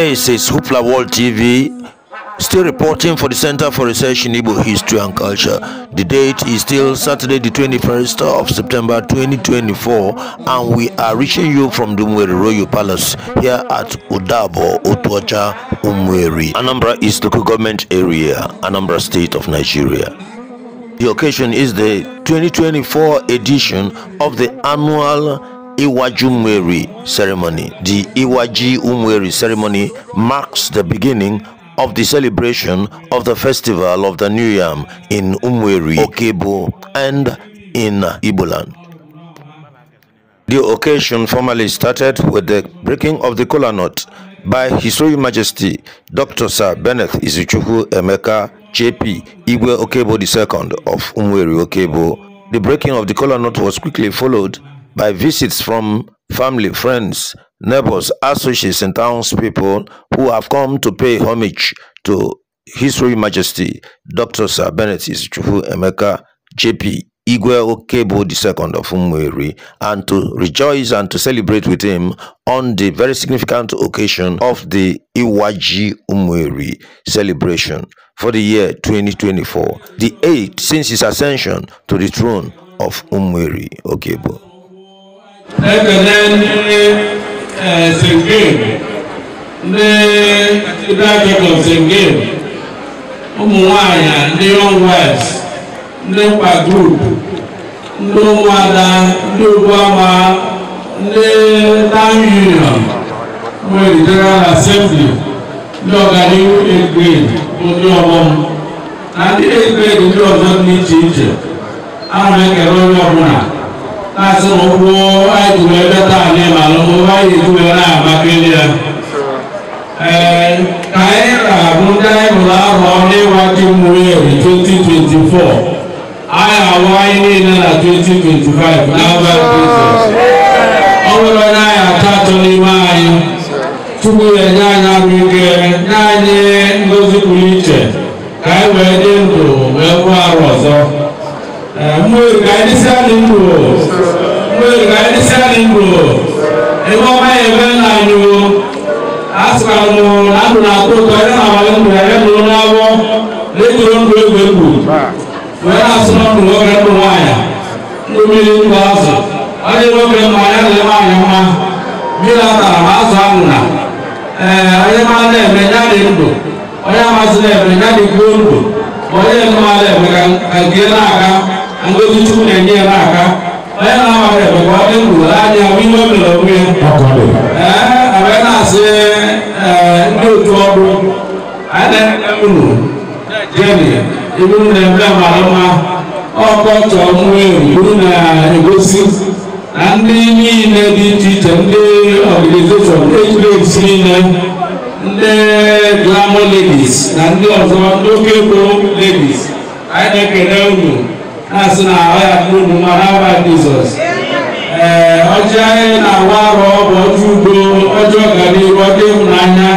This is Hoopla World TV, still reporting for the Center for Research in Igbo History and Culture. The date is still Saturday, the 21st of September 2024, and we are reaching you from Dumweri Royal Palace here at Udabo, Otuocha, Umweri. Anambra is local government area, Anambra State of Nigeria. The occasion is the 2024 edition of the annual Iwaji Umweri ceremony. The Iwaji Umweri ceremony marks the beginning of the celebration of the festival of the New Yam in Umweri, Okebo, and in Iboland. The occasion formally started with the breaking of the kola nut by His Royal Majesty Dr. Sir Bennett Izuchukwu Emeka JP Igwe Okebo II of Umweri Okebo. The breaking of the kola nut was quickly followed by visits from family, friends, neighbors, associates, and townspeople who have come to pay homage to His Royal Majesty Dr. Sir Bennett Isichukwu Emeka JP Igwe Okebo II of Umweri and to rejoice and to celebrate with him on the very significant occasion of the Iwaji Umweri celebration for the year 2024, the eighth since his ascension to the throne of Umweri Okebo. ekele eh, ndị sengem ndị dagegọf sengem ụmụ nwanyị ndị young wives ndị mkpa grup ndị ụmụada ndị ama ndị town union nwere general assembly ndị ọganihu egrade ndị ọghọm na ndị egrade ndị ọzọ dị iche iche ahụ ekele onye ọbụla na-asị na ụgwọ anyị tụrụ ebe taa anyị ma alụmụ anyị na-etubere na Abakaliki ya ee ka anyị na-abụ ndị anyị hụrụ ahụ ọrụ ịwa ji mmụrụ eri 2024 anyị ahụ anyị niile na 2025 n'aba ọ bụrụ onye anyị atọ atọ n'ime anyị tupu ya enye anyị arụ ike nye anyị ngozi pụrụ iche ka anyị wee dị ndụ wee kwụ arụ ọzọ mmoyo kanisa ningo mmoyo kanisa ningo ebo ma ebe na nyo asukanu adu na akoko ebe na awa ndu ebe na ụlọ abụọ lekoro ndu egwu egwu wee asụ na ndu nwoke ndu nwanyị ndu mmiri ndu azụ onye nwoke mma ya na ebe anyị mma mmiri atara ma azụ ahụ na ee onye ma na-eme ya dị ndụ onye amasị na-eme ya dị kwuo ndụ onye mma na-eme ka nke na-aga ndójú tún ní ẹni ẹ náà ká bẹ́ẹ̀ náà wà rẹ̀ bẹ̀kọ́ ẹ̀kú láàyè wíwọ́ mi lọ wí. ẹ abẹ́ náà ṣe ẹ ndé otu ọdún ẹnẹ ẹmúnú jẹ́ni ìmúnú ní ẹ̀mí àmà àlọ́mà ọkọ̀ tọ̀ mú ìmúnú ní ẹ̀gọ́sí na ndị niile dị iche iche ndị ọganizeshọn ejiresi niile ndị glamour ladies na ndị ọzọ ndị oke ego ladies anyị na-ekele unu asị na ahụ ya bụrụ ụmụ mma ha jizọs ee ọjị anyị na-awa arụ ọbụ ọjọ udo ọjọ ọganihu ọjọ ịhụnanya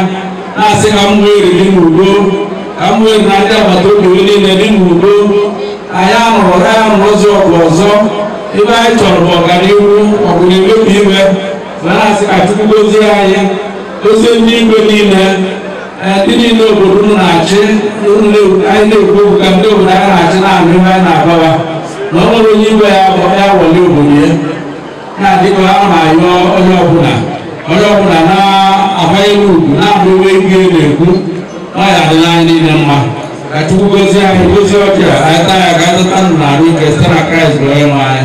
na-asị ka m nwee eriri n'udo ka m nwee na ndị agbata obi niile dị n'udo anyị anụrụ ya anụrụ ụzọ ọgụ ọzọ ebe anyị chọrọ bụ ọganihu ọgụ na-emebi iwe ma na-asị ka chukwu gozie anyị ozi ndị igwe niile ndị niile obodo na-achị anyị na-ekwu okwu ka ndị obodo anyị na-achị na-anụ ihe anyị na-agbawa na ọ nwere onye iwe ya ya wọle obodo ya na-adịkọ ahụ na-anyụ onye ọbụla onye ọbụla na-akwanyere ugwu na-abụ iwe ihe na-ekwu ọ ya adịla anyị niile mma ka chukwu gozie anyị gozie ọcha anyị taa ya ka azụta ndụ na arụ ike site na kraịst bụ onye nwe anyị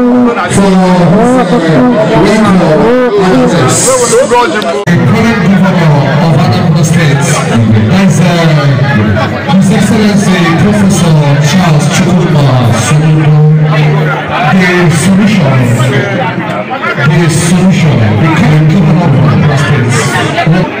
for the current governor of Anambra State, that's uh, His Excellency Professor Charles Chukwuma The solution, the solution,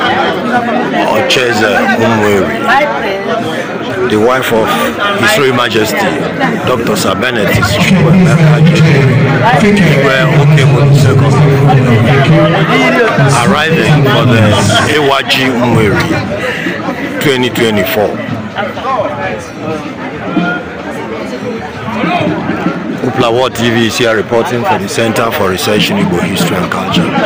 Ocheze Umweri, the wife of His Royal Majesty Dr. Sir Bennett arriving for the AYG Umweri 2024. Upla World TV is here reporting from the Center for Research in Igbo History and Culture.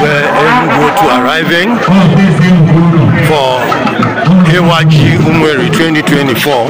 We're to arriving for KYG Umweri 2024.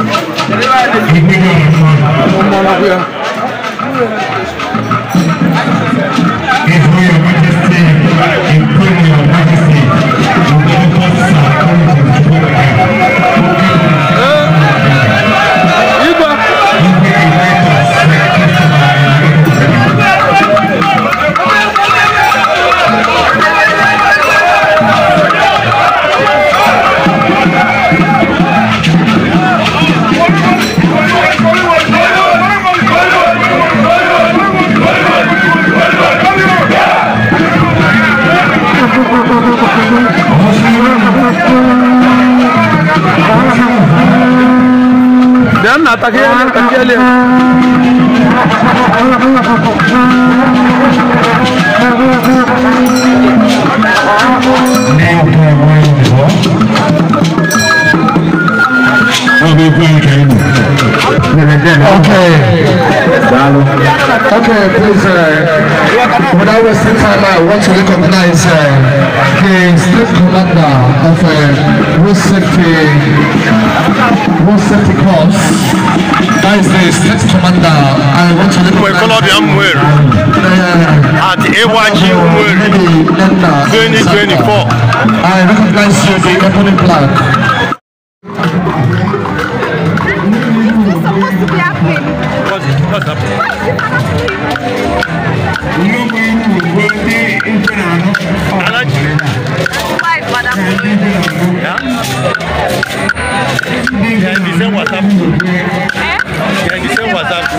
takiyelim, takiyelim. I'll be playing. Okay. Okay, please, uh, without wasting time, I want to recognize uh, the state commander of uh, road safety, road safety corps. That is the state commander. I want to recognize him. Uh, at AYG Umweri 2024. I recognize you, the company black. subir a pele. Pode, pode. Não vai não vai ter entrando. Alante. Vai, vai dar muito. Já disse WhatsApp. É? Já disse WhatsApp.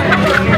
Thank you.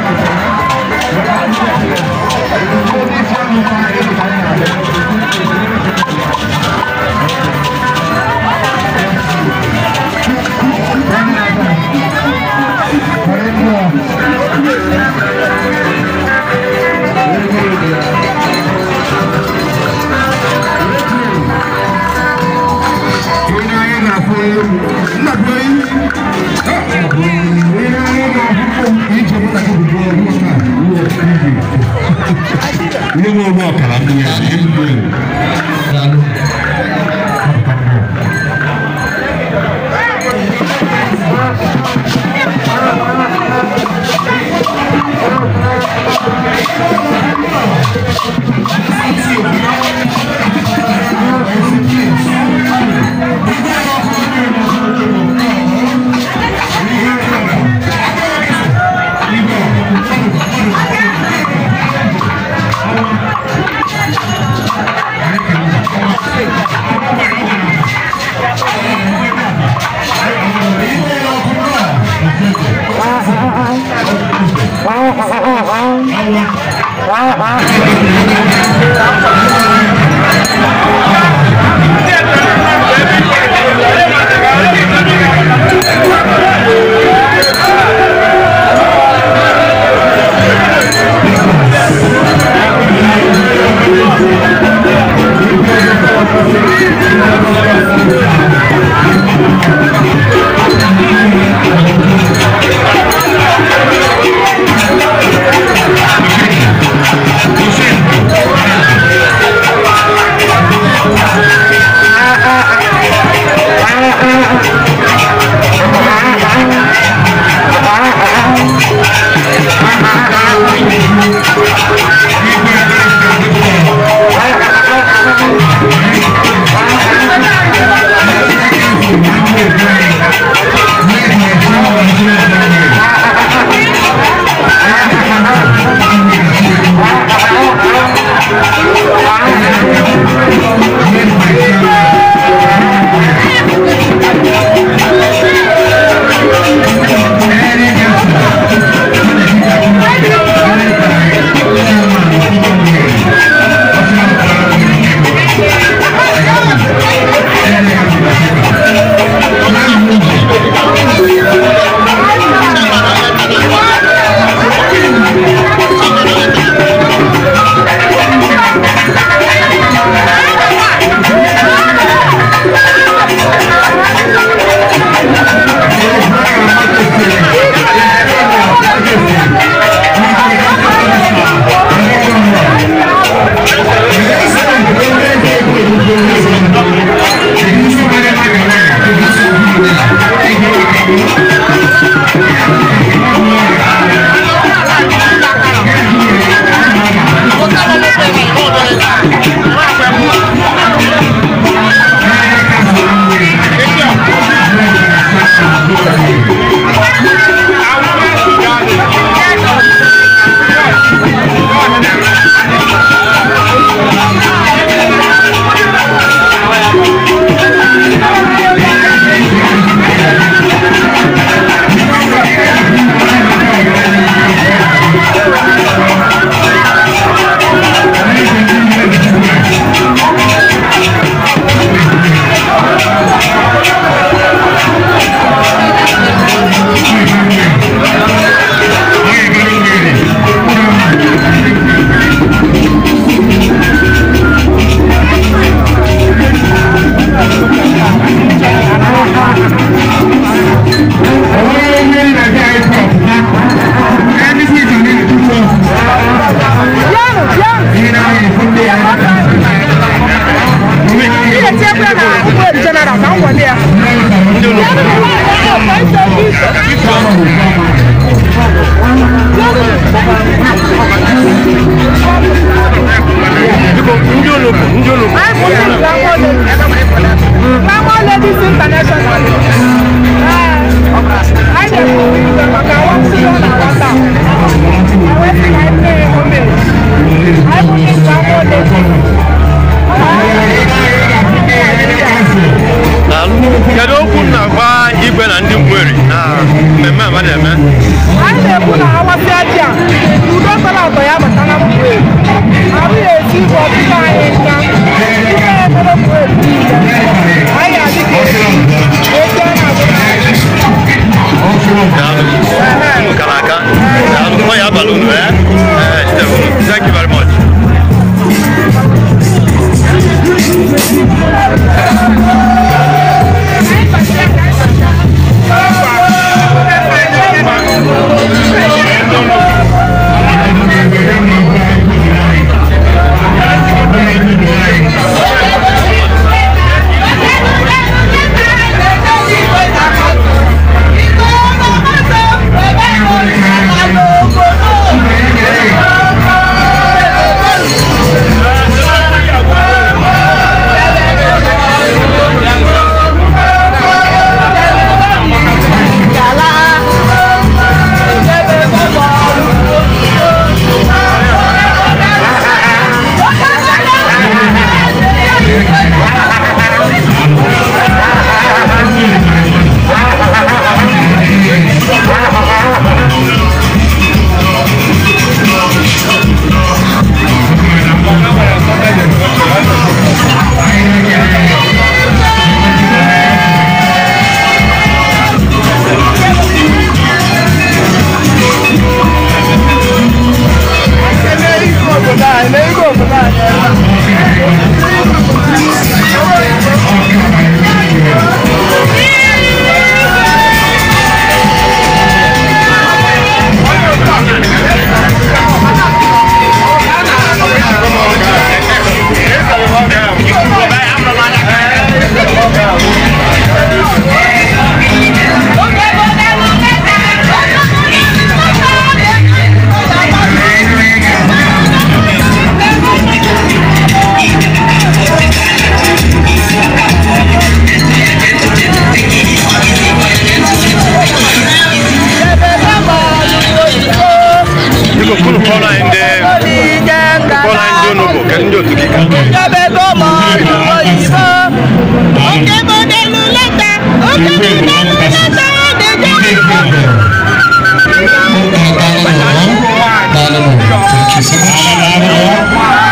de grande passage. Idée de Dans le monde. Dans le monde. Dans le monde.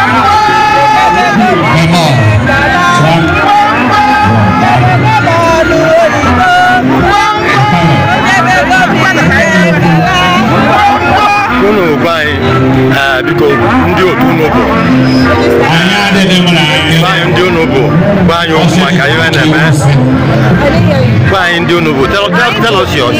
ọba anyị uh, biko ndị otu unu bụ anyị ndị unu bụ anyị okwu maka ihe na anyị ndị unu bụ tell us yours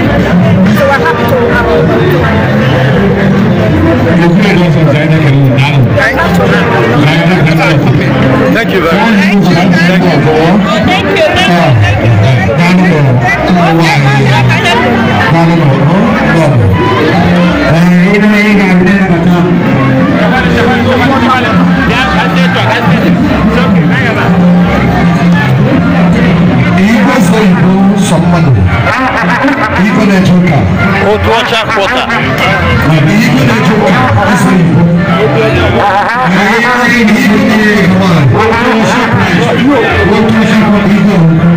So we're happy to have Thank you very much. Thank you. Thank you. Thank you. Thank you. Thank you. Thank you. Thank you. botar. Outro tipo